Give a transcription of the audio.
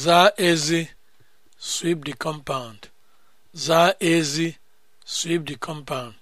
Zaa ezi sweep the compound. Zaa ezi sweep the compound.